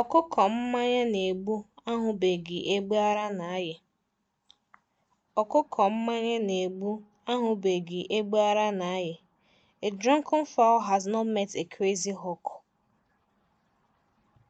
Ọkụkọ mmanya na-egbu ahụbeghị egbe ara na-ayị Ọkụkọ mmanya na A drunken fowl has not met a crazy hawk.